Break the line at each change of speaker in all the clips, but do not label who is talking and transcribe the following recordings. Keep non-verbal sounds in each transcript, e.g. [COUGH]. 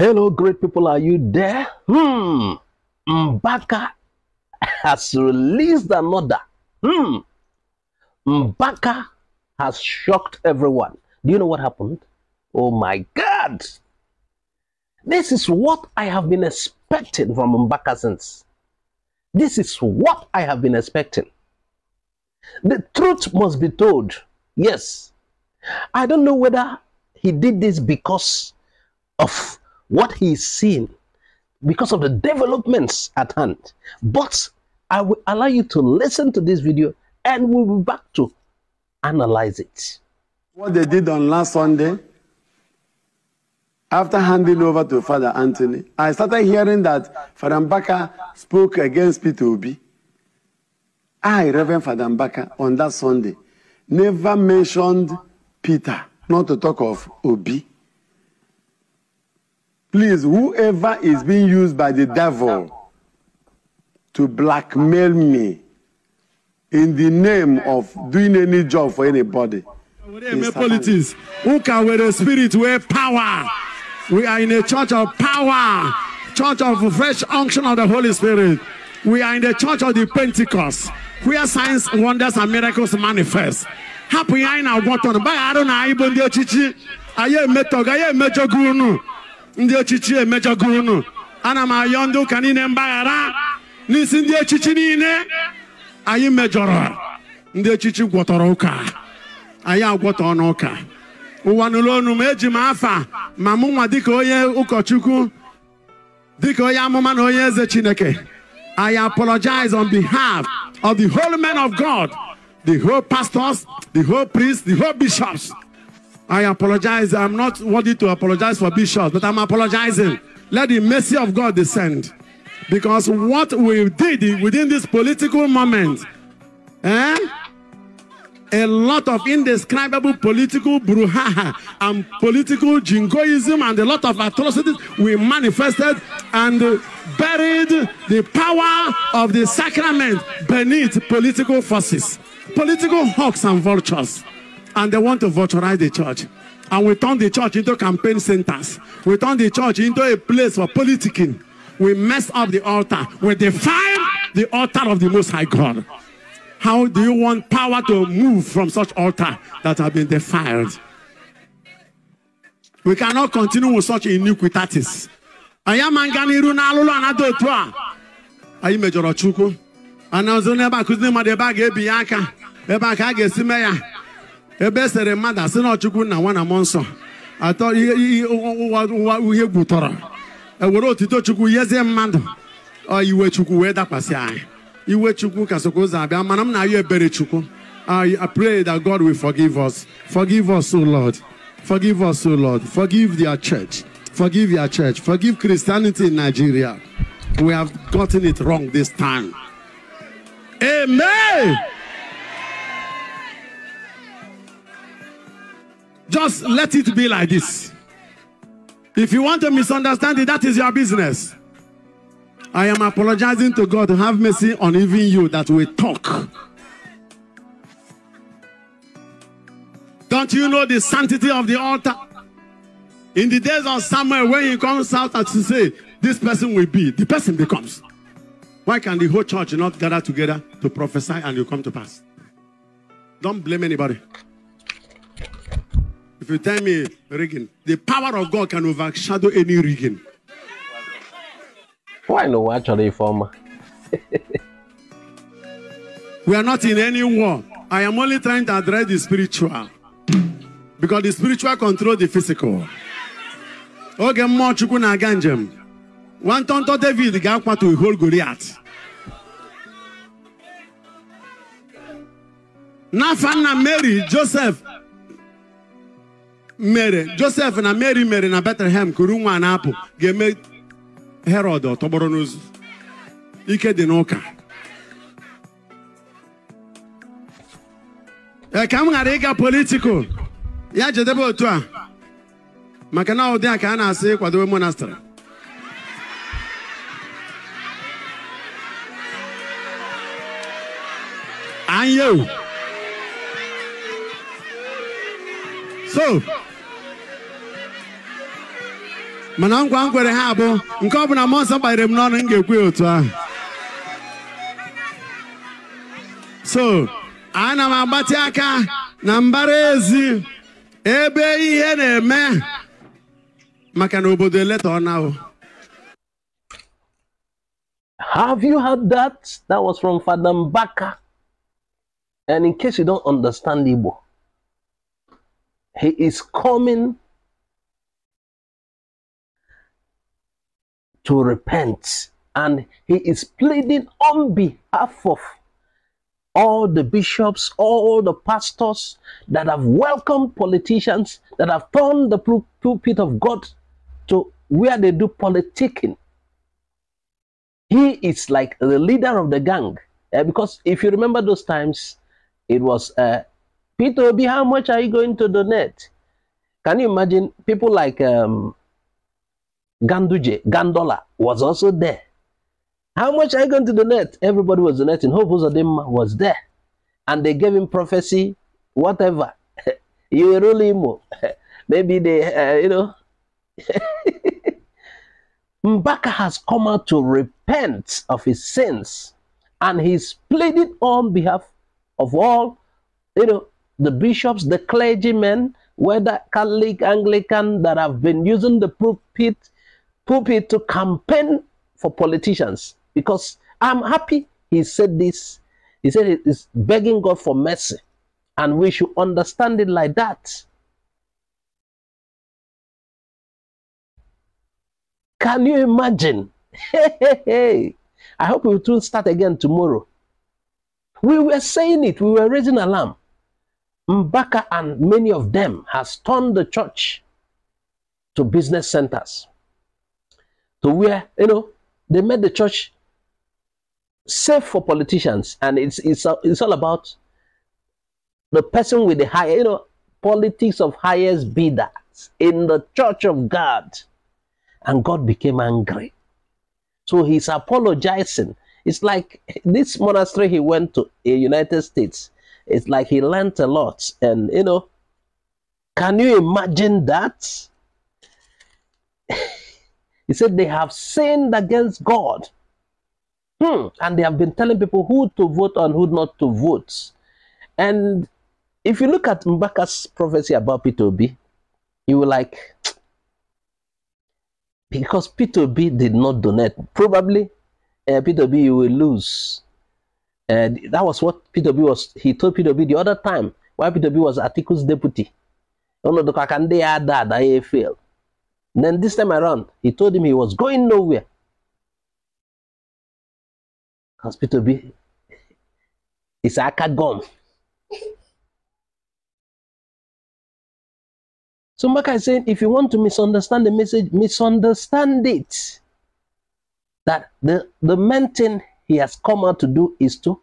Hello, great people. Are you there? Hmm. Mbaka has released another. Hmm. Mbaka has shocked everyone. Do you know what happened? Oh my God. This is what I have been expecting from Mbaka since. This is what I have been expecting. The truth must be told. Yes. I don't know whether he did this because of what he's seen because of the developments at hand. But I will allow you to listen to this video and we'll be back to analyze it. What they did on last Sunday, after
handing over to Father Anthony, I started hearing that Father Mbaka spoke against Peter Obi. I, Reverend Father Mbaka, on that Sunday, never mentioned Peter, not to talk of Obi. Please, whoever is being used by the devil to blackmail me in the name of doing any job for anybody. Politics. Who can with a spirit wear power? We are in a church of power, church of fresh unction of the Holy Spirit. We are in the church of the Pentecost, where signs, wonders, and miracles manifest. Happy I now got on by I don't know, I even the chichi. I I ndị echichi emejọgo ana m ayọ ndị ụka niile mgbaghara n'isi ndị echichi niile anyị mejọrọ ndị echichi gwọtọrọ ụka anyị agwọtọ ụka. ụwa nụlụ onu ma eji m afa ma mụnwa nwa dịka onye ụkọchukwu dịka onye amụma na onye eze chineke I apologize on behalf of the whole men of God, the whole pastors, the whole priests, the whole bishops. I apologize. I'm not worthy to apologize for bishops, but I'm apologizing. Let the mercy of God descend. Because what we did within this political moment, eh? a lot of indescribable political brouhaha and political jingoism and a lot of atrocities we manifested and buried the power of the sacrament beneath political forces, political hawks and vultures and they want to virtualize the church. And we turn the church into campaign centers. We turn the church into a place for politicking. We mess up the altar. We defile the altar of the Most High God. How do you want power to move from such altar that have been defiled? We cannot continue with such iniquities. anyị amaga n'iru n'alụlụ anada otu a anyị mejọrọ Chukwu ana ọzọ n'ebe a kụziri mmadụ ebe a ebe e sere mmadụ asị na ọchukwu nna nwa na mmụọ nsọ atọ ihe ụwa uhie gwutọrọ ewere otito chukwu yezie mmadụ iwe chukwu wee dakwasị anyị iwe chukwu ka sokwa ụzọ abịa mana m na-ayọ ebere chukwu I pray that God will forgive us. Forgive us, O Lord. Forgive us, O Lord. Forgive their church. Forgive your church. Forgive Christianity in Nigeria. We have gotten it wrong this time. Amen. just let it be like this. If you want to misunderstand it, that is your business. I am apologizing to God. Have mercy on even you that we talk. Don't you know the sanctity of the altar? In the days of Samuel, when he comes out and to say, This person will be, the person becomes. Why can the whole church not gather together to prophesy and you come to pass? Don't blame anybody. If you tell me rigging, the power of God can overshadow
any rigging. Why no actually former?
we are not in any war. I am only trying to address the spiritual. Because the spiritual control the physical. Okay, more Chukwu na-aga njem. Nwata ntọ David ga-akwatu ihol Goliath. N'afọ Mary Joseph mere josef na mary mere na betlehem kuru nwa na-apụ ga-eme herod ọtọgbọrọ n'ozu ike dị n'ụka ee ka m ghara ịga politikal ya jedebe otu a maka na ụdị a ka a na-asị kwadobe monastrị anya so mana nkwa m ha abụ nke ọ bụla mmụọ nsọ kpanyere m n'ọnụ m ga-ekwe otu ahụ so ana m agbati aka na mbara ezi ebe ihe na-eme maka na obodo
eleta ọnahụ Have you heard that? That was from Father Mbaka. And in case you don't understand Igbo, he is coming to repent. And he is pleading on behalf of all the bishops, all the pastors that have welcomed politicians, that have turned the pulpit of God to where they do politicking. He is like the leader of the gang. Uh, because if you remember those times, it was, uh, Peter Obi, how much are you going to donate? Can you imagine people like um, Ganduje, Gandola was also there. How much are you going to donate? Everybody was donating. Hope Uzodema was there. And they gave him prophecy, whatever. [LAUGHS] you rule him. [LAUGHS] Maybe they, uh, you know. [LAUGHS] Mbaka has come out to repent of his sins. And he's pleaded on behalf of all, you know, the bishops, the clergymen, whether Catholic, Anglican, that have been using the pulpit pulpit to campaign for politicians because I'm happy he said this. He said he's begging God for mercy, and we should understand it like that. Can you imagine? Hey, hey, hey. I hope we will start again tomorrow. We were saying it, we were raising alarm. Mbaka and many of them has turned the church to business centers to where, you know, they made the church safe for politicians. And it's, it's, it's all about the person with the higher, you know, politics of highest bidder in the church of God. And God became angry. So he's apologizing. It's like this monastery he went to in United States. It's like he learned a lot. And, you know, can you imagine that? He said they have sinned against God. Hmm. And they have been telling people who to vote and who not to vote. And if you look at Mbaka's prophecy about P2B, you were like, [TSK] because P2B did not donate, probably uh, P2B you will lose. And uh, that was what P2B was, he told P2B the other time, why P2B was Atiku's deputy. No, no, I can they that, I then this time around, he told him he was going nowhere. Hospital B a cat gone. so Maka is saying, if you want to misunderstand the message, misunderstand it. That the, the main thing he has come out to do is to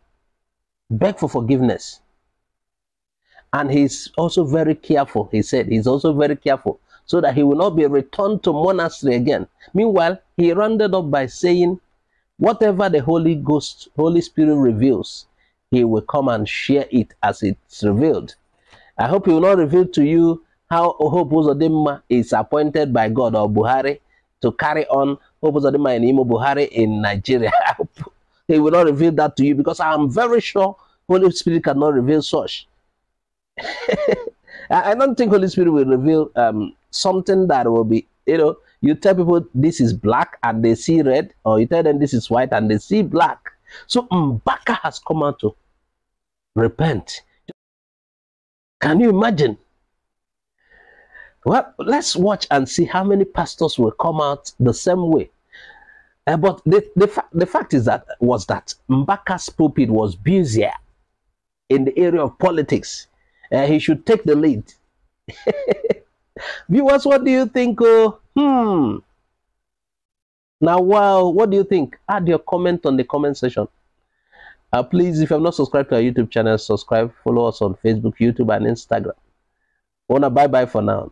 beg for forgiveness. And he's also very careful. He said he's also very careful so that he will not be returned to monastery again. Meanwhile, he rounded up by saying, whatever the Holy Ghost, Holy Spirit reveals, he will come and share it as it's revealed. I hope he will not reveal to you how Oho Uzodinma is appointed by God or Buhari to carry on Oho Uzodinma and Imo Buhari in Nigeria. [LAUGHS] he will not reveal that to you because I am very sure Holy Spirit cannot reveal such. [LAUGHS] I don't think Holy Spirit will reveal um, something that will be, you know, you tell people this is black and they see red, or you tell them this is white and they see black. So Mbaka has come out to repent. Can you imagine? Well, let's watch and see how many pastors will come out the same way. Uh, but the, the, fa the fact is that was that Mbaka's pulpit was busier in the area of politics. Uh, he should take the lead. [LAUGHS] Viewers, what do you think? Oh, hmm. Now, wow, what do you think? Add your comment on the comment section. Uh, please, if you have not subscribed to our YouTube channel, subscribe, follow us on Facebook, YouTube, and Instagram. Wanna bye bye for now.